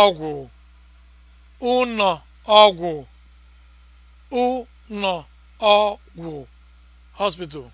ọgwụ ụnọ ọgwụ ụnọ ọgwụ hospital